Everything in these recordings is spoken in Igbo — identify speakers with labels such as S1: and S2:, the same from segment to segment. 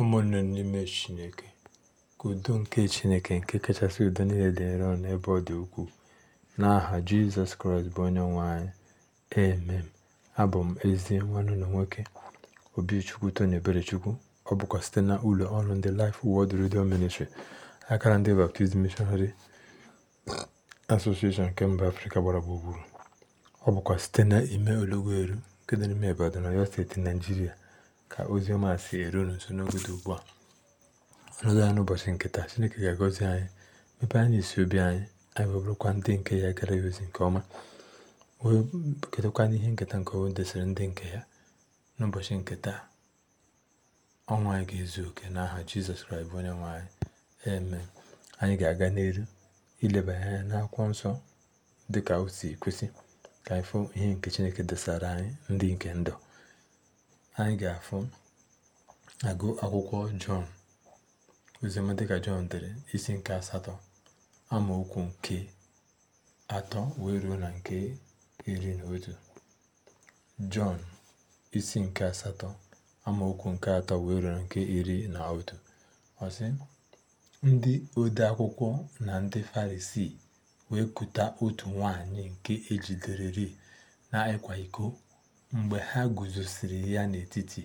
S1: ụmụnne n'ime Chineke ka udo nke Chineke nke kachasị udo niile dị nro n'ebe ọ dị ukwuu n'aha Jizọs Kraịst bụ onye nwe anyị emem abụ m ezi nwanne ụlọ nwoke Obichukwu Tony chukwu ọ bụkwa site na ụlọ ọrụ ndị Life Word Radio Ministry akara ndị Baptist Missionary Association nke mba Afrịka gbara gburugburu ọ bụkwa site na ime eru nke dị n'ime Ibadan Ọyọ steeti Naijiria ka ozi ọma si eru unu nso n'oge dị ugbu a ọnọdụ ya n'ụbọchị nke taa chineke ga-agọzi anyị mepee anyị isi obi anyị anyị wee ndị nke ya gara ya ozi nke ọma wee ketakwa n'ihe nketa nke onwe desịrị ndị nke ya n'ụbọchị nke taa ọnwa anyị ga-ezu oke n'aha jizọs kraịst bụ onye nwe anyị eme anyị ga-aga n'elu ileba anya n'akwụkwọ nsọ dịka o si kwesị ka anyị fụ ihe nke chineke desara anyị ndị nke ndụ anyị ga-afụ agụ akwụkwọ jọn oziọma dịka jọn dere isi nke asatọ amaokwu nke atọ wee ruo na nke iri na otu jọn isi nke asatọ amaokwu nke atọ wee ruo na nke iri na otu ọsị ndị ode akwụkwọ na ndị farisii wee kụta otu nwanyị nke ejiderịrị na ịkwa iko Mgbe ha guzosiri ya n'etiti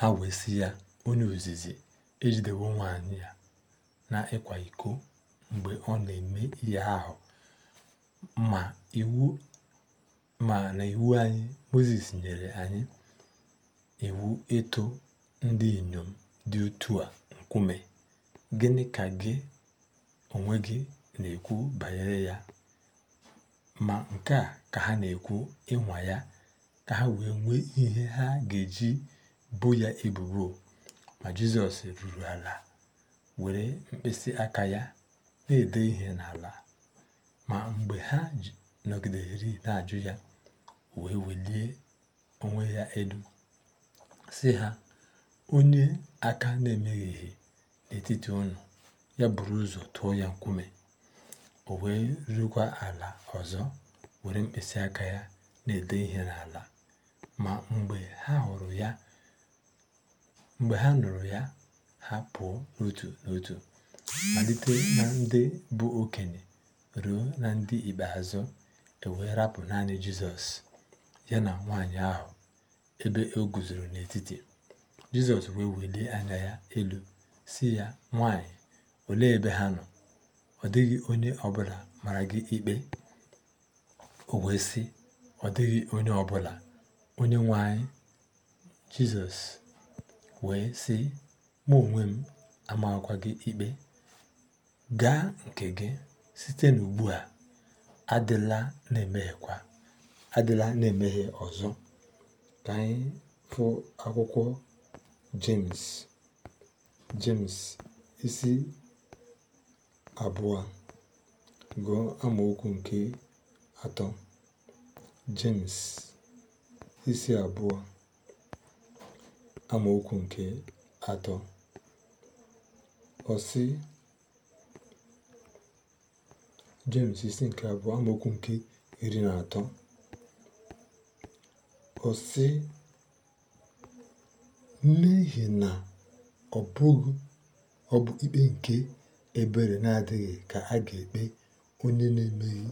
S1: ha wee ya, “Onye ozizi, ejidewo nwanyị na ịkwa iko mgbe ọ na-eme ihe ahụ, ma na iwu anyị, moses nyere anyị iwu ịtụ ndị inyom dị otu a nkume, gịnị ka gị onwe gị na-ekwu banyere ya?” ma nke a ka ha na-ekwu ịnwa ya ka ha wee nwee ihe ha ga-eji bo ya ebubo ma Jizọs ruru ala were mkpịsị aka ya na-ede ihe n'ala ma mgbe ha nọgidere na-ajụ ya wee welie onwe ya elu si ha onye aka na ihe n'etiti unu ya buru ụzọ tụọ ya nkume o wee rukwa ala ọzọ were mkpịsị aka ya na-ede ihe n'ala ma mgbe ha hụrụ ya ha nụrụ ya ha pụọ n'otu n'otu malite na ndị bụ okenye ruo na ndị ikpeazụ e rapụ naanị Jizọs ya na nwanyị ahụ ebe o guzoro n'etiti Jizọs wee welie anya ya elu si ya nwanyị olee ebe ha nọ ọ dịghị onye ọbụla mara gị ikpe o wee sị ọ dịghị onye ọbụla onye nwe anyị jizọs wee sị mụ onwe m amakwa gị ikpe gaa nke gị site n'ugbu a adịla na-emeghekwa adịla na emeghe ọzọ ka anyị fụ akwụkwọ james james isi abụọ gụọ amaokwu nke atọ Jemis isi abụọ amaokwu nke atọ osi isi nke abụọ amaokwu nke iri na atọ ọ n'ihi na ọ bụghị ọ bụ ikpe nke ebere na-adịghị ka a ga-ekpe onye na-emeghị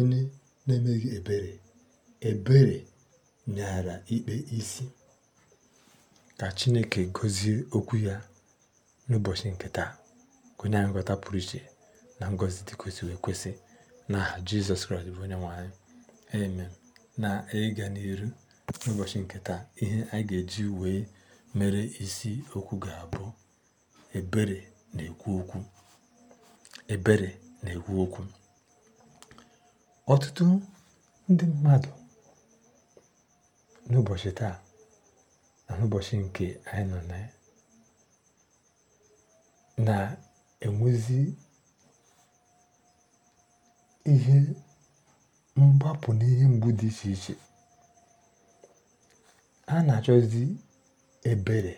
S1: onye na-emeghị ebere ebere nyaara ikpe isi ka Chineke gọzie okwu ya n'ụbọchị nke taa onye anyị nghọta pụrụ iche na ngozi dị kwesịrị ekwesị n'aha Jizọs Kraịst bụ onye nwanyị na ịga n'iru n'ụbọchị nke taa ihe anyị ga-eji wee mere isi okwu ga-abụ ebere na-ekwu okwu ebere na-ekwu okwu Ọtụtụ ndị mmadụ n'ụbọchị taa na n'ụbọchị nke anyị nọ na na-enwezi ihe mgbapụ n'ihe mgbu dị iche iche a na-achọzi ebere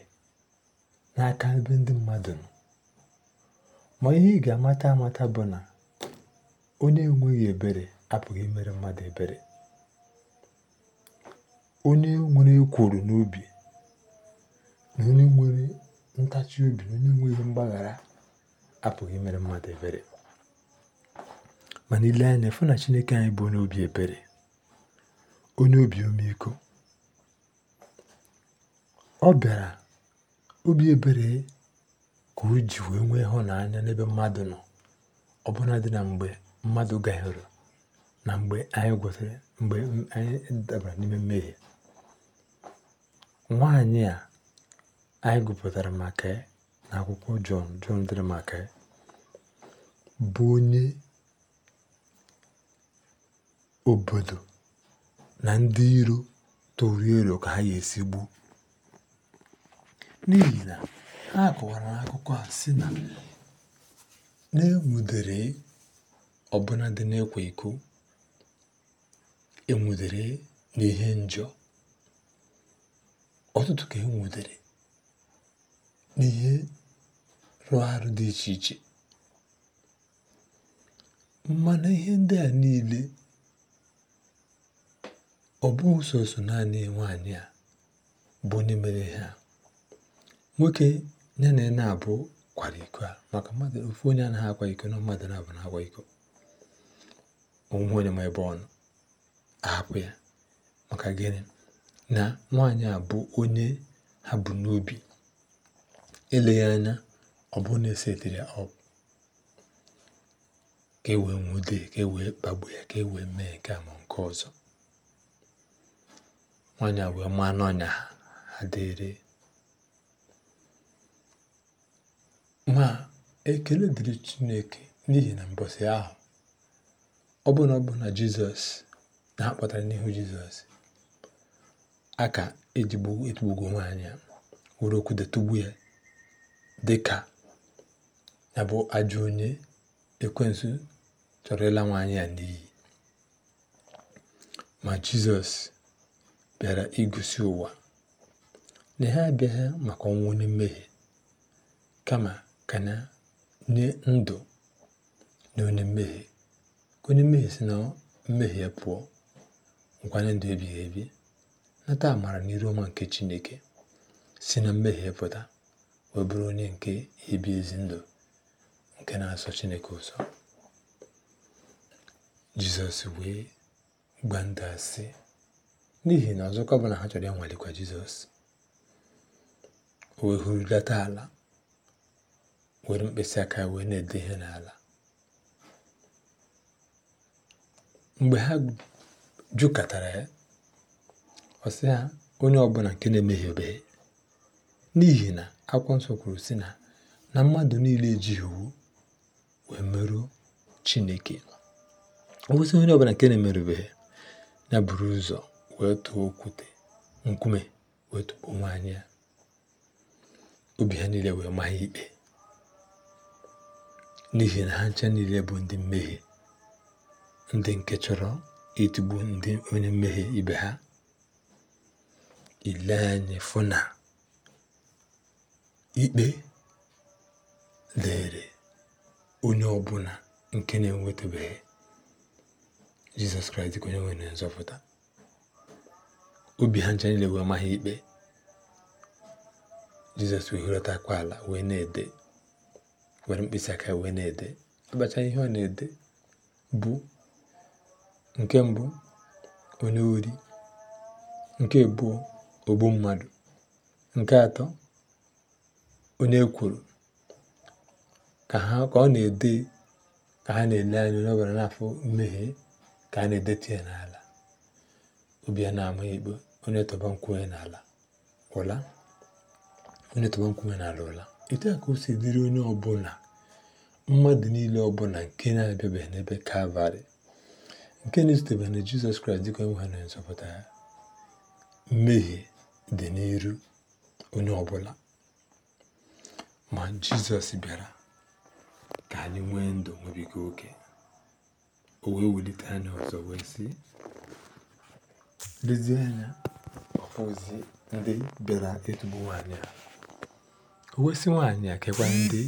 S1: n'aka ebe ndị mmadụ nọ ma ihe ị ga-amata amata bụ na onye enweghị ebere apụghị imere mmadụ ebere onye nwere ekworo n'obi na onye nwere ntachi obi na onye nweghị mgbaghara apụghị mere mmadụ ebere mana ile anya fụ na chineke anyị bụ onye obi ebere onye obi ọmịiko ọ bịara obi ebere ka o ji wee nwee ịhụnanya n'ebe mmadụ nọ ọbụna dị na mgbe mmadụ gahịrị na mgbe anyị gwụsịrị mgbe anyị dabara n'ime mmehie nwaanyị a anyị gụpụtara maka na akwụkwọ jọn jọn dịrị maka bụ onye obodo na ndị iro tụrụ ero ka ha ga-esi gbuo n'ihi na ha kọwara akụkọ a sị na na-enwudere ọbụna dị n'ịkwa iko enwudere n'ihe njọ ọtụtụ ka enwudere n'ihe rụrụ arụ dị iche iche mana ihe ndị a niile ọ bụghị sọsọ naanị nwaanyị a bụ onye mere ha nwoke ya na na-abụ kwara iko a maka mmadụ ofu onye anaghị akwa iko na mmadụ na-abụ na-akwa iko onwe onye ma ebe ọnụ ahapụ ya maka gịnị na nwaanyị a bụ onye ha bụ n'obi eleghị anya ọ bụrụ na esetere ọ ka e wee nwude ka e wee kpagbu ya ka e wee mee nke ma nke ọzọ nwaanyị a wee maa n'ọnya ha ha dịrị ma ekele dịrị Chineke n'ihi na mbọsị ahụ ọ bụ na ọ bụ na Jizọs na ha kpọtara n'ihu Jizọs ka ejigbo etugbugo nwaanyị a were okwu tugbu ya dịka ya bụ ajọ onye ekwensu chọrọ ịla nwaanyị a n'iyi ma Jizọs bịara igosi ụwa na ha abịaghị maka ọnwụ onye mmehie kama ka na nye ndụ na onye mmehie ka onye mmehie si na mmehie pụọ nkwanye ndụ ebighị ebi nata amara na iru ọma nke Chineke si na mmehie pụta wee bụrụ onye nke ebi ezi ndụ nke na-asọ Chineke ụsọ Jizọs wee gba ndụ asị n'ihi na ọzọkọ bụla ha chọrọ ịnwalikwa Jizọs o wee hụrụdata ala were mkpịsị aka ya wee na-ede ihe n'ala mgbe ha katara ya ọ sị ha onye ọbụla nke na-emehiebeghị n'ihi na akwụkwọ nsọ kwuru sị na na mmadụ niile ejighị iwu wee merụọ chineke obosi onye ọbụla nke na-emerụbeghị na buru ụzọ wee tụọ okwute nkume wee onwe nwaanyị ya obi ha niile wee maa ikpe n'ihi na ha nche niile bụ ndị mmehie ndị nke chọrọ ịtụgbu ndị onye mmehie ibe ha ile anyị fụ na ikpe lere onye ọbụla nke na-enwetabeghị jizọs kraịst ka onye nwere na nzọpụta obi ha ncha niile wee amaghị ikpe jizọs wee hụrọta ala wee na-ede were mkpịsị aka wee na-ede abacha ihe ọ na-ede bụ Nke mbụ, onye ori. Nke ogbu mmadụ. Nke atọ, onye kwuru Ka ha ka ọ na-ede ka ha na-ele anya onye ọbara na-afụ mmehie ka a na-edetu ya n'ala. ụbịa na-ama ikpe. Onye tọba nkume n'ala ụla. Onye tọba nkwuwe n'ala ụla. Etu a ka o si dịrị onye ọbụla, mmadụ niile ọbụla nke na-abịabeghị n'ebe Kalvarị nke na-esitebe na jizọs kraịst dịka onwe ha nzọpụta ya mmehie dị n'iru onye ọbụla ma jizọs bịara ka anyị nwee ndụ nwebiga oke o wee anya ọzọ wee sị lezie anya ọkpụzi ndị bịara etugbu nwaanyị a o wesi nwaanyị a kekwa ndị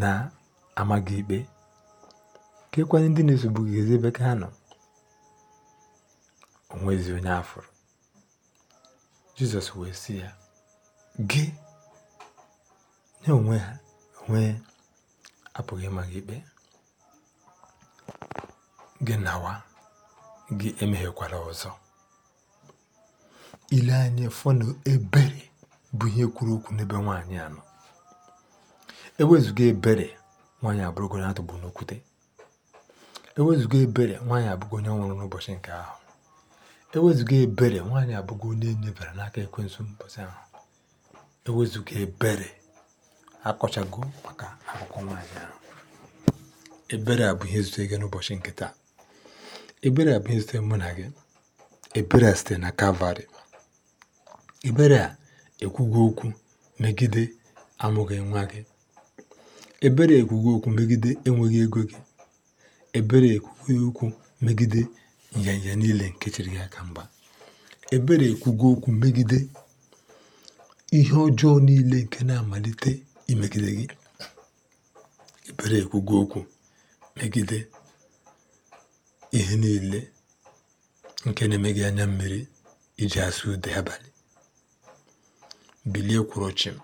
S1: na-amaghị ikpe ka e ndị na ezi ebe ka ha nọ onwezi onye afụrụ jizọs wee sị ya gị nye onwe ha onwe apụghị ịma gị ikpe gị nawa gị emeghekwala ọzọ ile anya fọnụ ebere bụ ihe kwuru okwu n'ebe nwaanyị a nọ ewezụga ebere nwaanyị abụrụgo na atụgbu n'okwute Ewezụga ebere, nwaanyị abụgo onye nwụrụ n'ụbọchị nke ahụ. Ewezụga ebere, nwaanyị abụgo onye e nyebara n'aka ekwensu n'ụbọchị ahụ. Ewezụga ebere, akọchago maka akụkọ nwaanyị ahụ. Ebere a bụ ihe zutere gị n'ụbọchị nke taa. Ebere a bụ ihe zutere mụ na gị. Ebere a sitere na Kalvarị. Ebere a ekwugo okwu megide amụghị nwa gị. Ebere ekwugo okwu megide enweghị ego gị. ebere ekwughị okwu megide nyanya niile nke chịrị ya aka mba ebere ekwugo okwu megide ihe ọjọọ niile nke na-amalite imegide gị ebere ekwugo okwu megide ihe niile nke na emeghị anya mmiri iji asụ ude abalị bilie kwụrụ chịm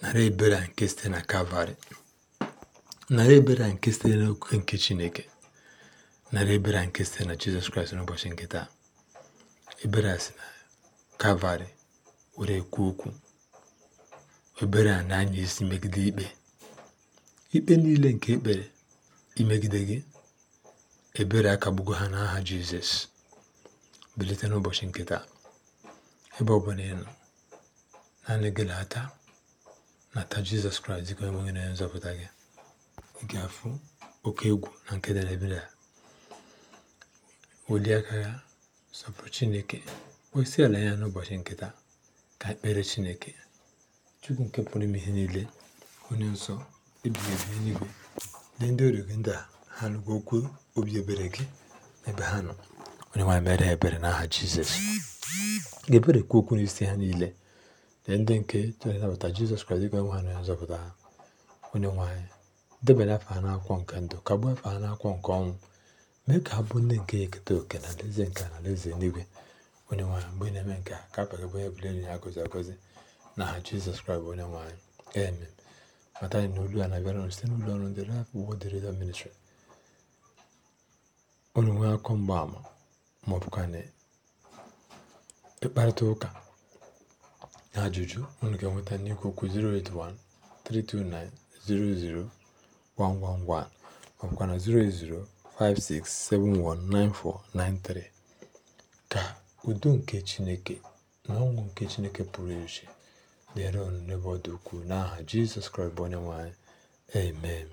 S1: nara ebere a nke site na kalvarị nara ebere a nke site n'okwukwe nke Chineke narị ebere a nke site na Jizọs Kraịst n'ụbọchị nke taa ebere a si na kalvarị were kwuo okwu ebere a na-anya isi megide ikpe ikpe niile nke ekpere imegide gị ebere akagbugo ha n'aha Jizọs bilite n'ụbọchị nke taa ebe ọ bụla ị naanị gị na-ata nata Jizọs Kraịst dịka onye nwe na nzọpụta gị ị ga-afụ oke egwu na nke edemede a welie aka ya sọpụrụ chineke kposi ala ya n'ụbọchị nkịta ka ekpere chineke chukwu nke pụrụ ime ihe niile onye nsọ ebighị ebi n'igwe lee ndị ọrụ gị ndị a ha nụgwa okwu obi ebere gị n'ebe ha nọ onye nwaanyị mere ha ebere n'aha jizọs ga-ebere kwu okwu n'isi ha niile dị ndị nke chọrọ ịnabata jizọs kraịst dịka nwe ha na nzọpụta ha onye nwaanyị debere afọ ha n'akwụkwọ nke ndụ ka afọ ha n'akwụkwọ nke ọnwụ mee ka ha bụ ndị nke ekete oke na alaeze nke alaeze n'igwe onye nwanyị mgbe na-eme nke a ka apagabụ onye bụla enyi ya gọzi agọzi na ha jizọs kraịst onye nwanyị eme mata anyị na olu a na-abịara site n'ụlọ ọrụ ndị rap wod redio ministri onye nwee akọ mgbaama ma ọ bụkwa na ịkparịta ụka na ajụjụ unu ga-enweta n'ikwu okwu 081 329 00 111 ma ọ bụkwa Ka udo nke Chineke na ọṅụ nke Chineke pụrụ iche dịrị unu n'ebe ọ dị ukwuu n'aha Jizọs Kraịst bụ Onyenwe Amen.